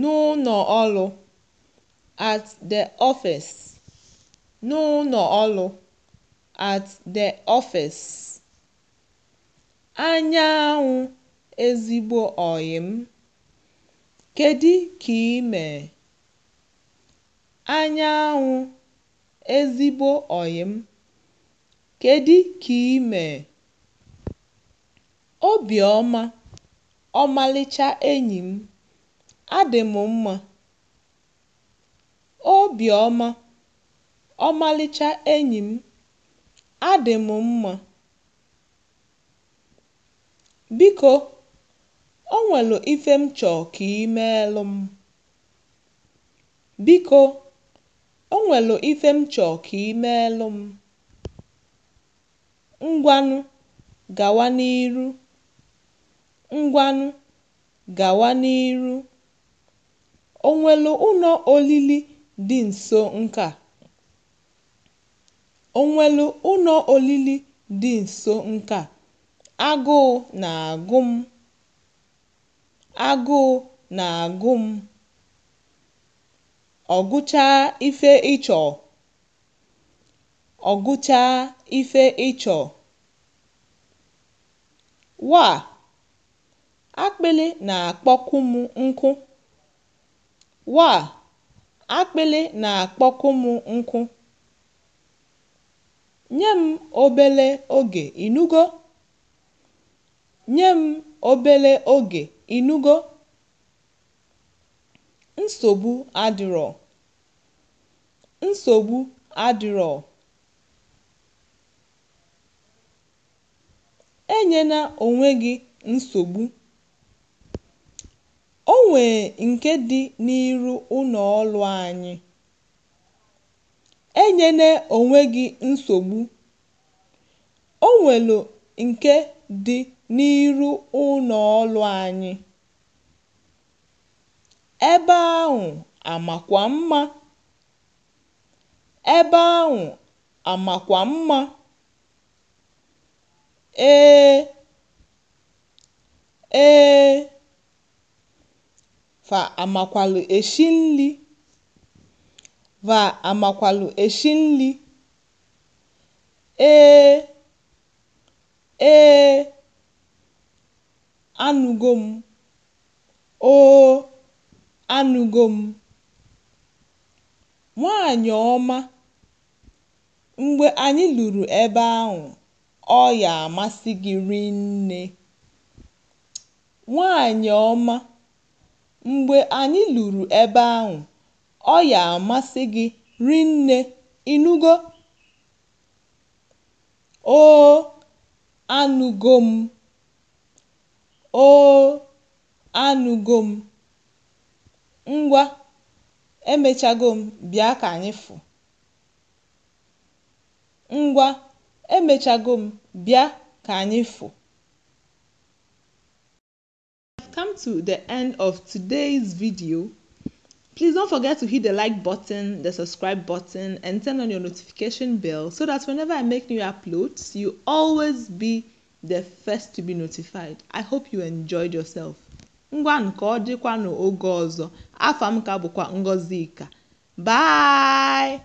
nụnọ ọrụ (at the office) nụnọ ọrụ (at the office) anyanwụ ezigbo ọyị kedu ka ị mere? anyanwụ ezigbo ọyị kedu ka ị mere? obiọma, ọmalịcha enyi m. adị m mma, obiọma, ọmalịcha enyi m, adị m mma. Biko, o nwelu ife m chọọ ka i meelụ m. Biko, o nwelu ife m chọọ ka m. Ngwanụ gawa n'iru. Ngwanụ gawa n'iru. O nwelu ụnọ olili dị nso nka a? O ụnọ olili dị nso nka Agụụ na-agụ m, agụụ na-agụ m. Ọ ife ị chọọ, ife ị chọọ. Waa! Akpịlị na-akpọkwu m nkụ. Wa! akpịlị na-akpọku m nkụ. Nye m obele oge inugo Nye Nsogbu adịrọ, nsogbu Enyena onwe gị nsogbu. nwee nke dị n'iru ụnọ̀ọlụ anyị. Enyene onwe gị nsogbu o nwelu nke dị n'iru ụnọ̀ọlụ anyị. Ebe ahụ àmàkwà mma, ebe ahụ àmàkwà mma, ee, ee. va amakwalụ eshi nli va amakwalụ eshi nli ee ee anụgo m oo anụgo m nwaanyị ọma mgbe anyị luru ebe ahụ ọ ya amasị gị rinne nwaanyị ọma Mgbe anyị lụrụ ebe ahụ, ọ ya-amasị gị rinne, ịnụgo? “Oo, anụgo m, oo, m, ngwa emechago m bịa ka anyị fụ, ngwa emechago m bịa ka anyị fụ.” have come to the end of today's video. Please don't forget to hit the like button, the subscribe button, and turn on your notification bell so that whenever I make new uploads, you always be the first to be notified. I hope you enjoyed yourself. bye